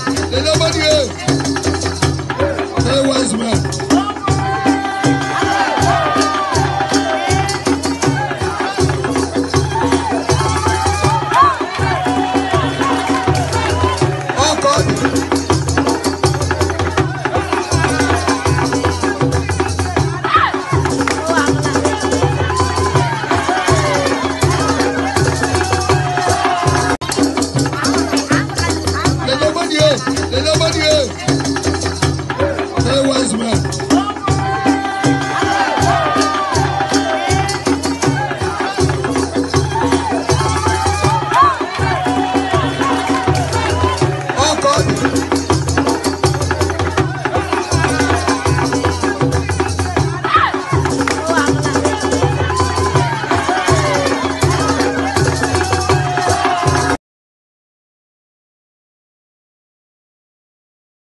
le dieu They're money. They love money. They wise money.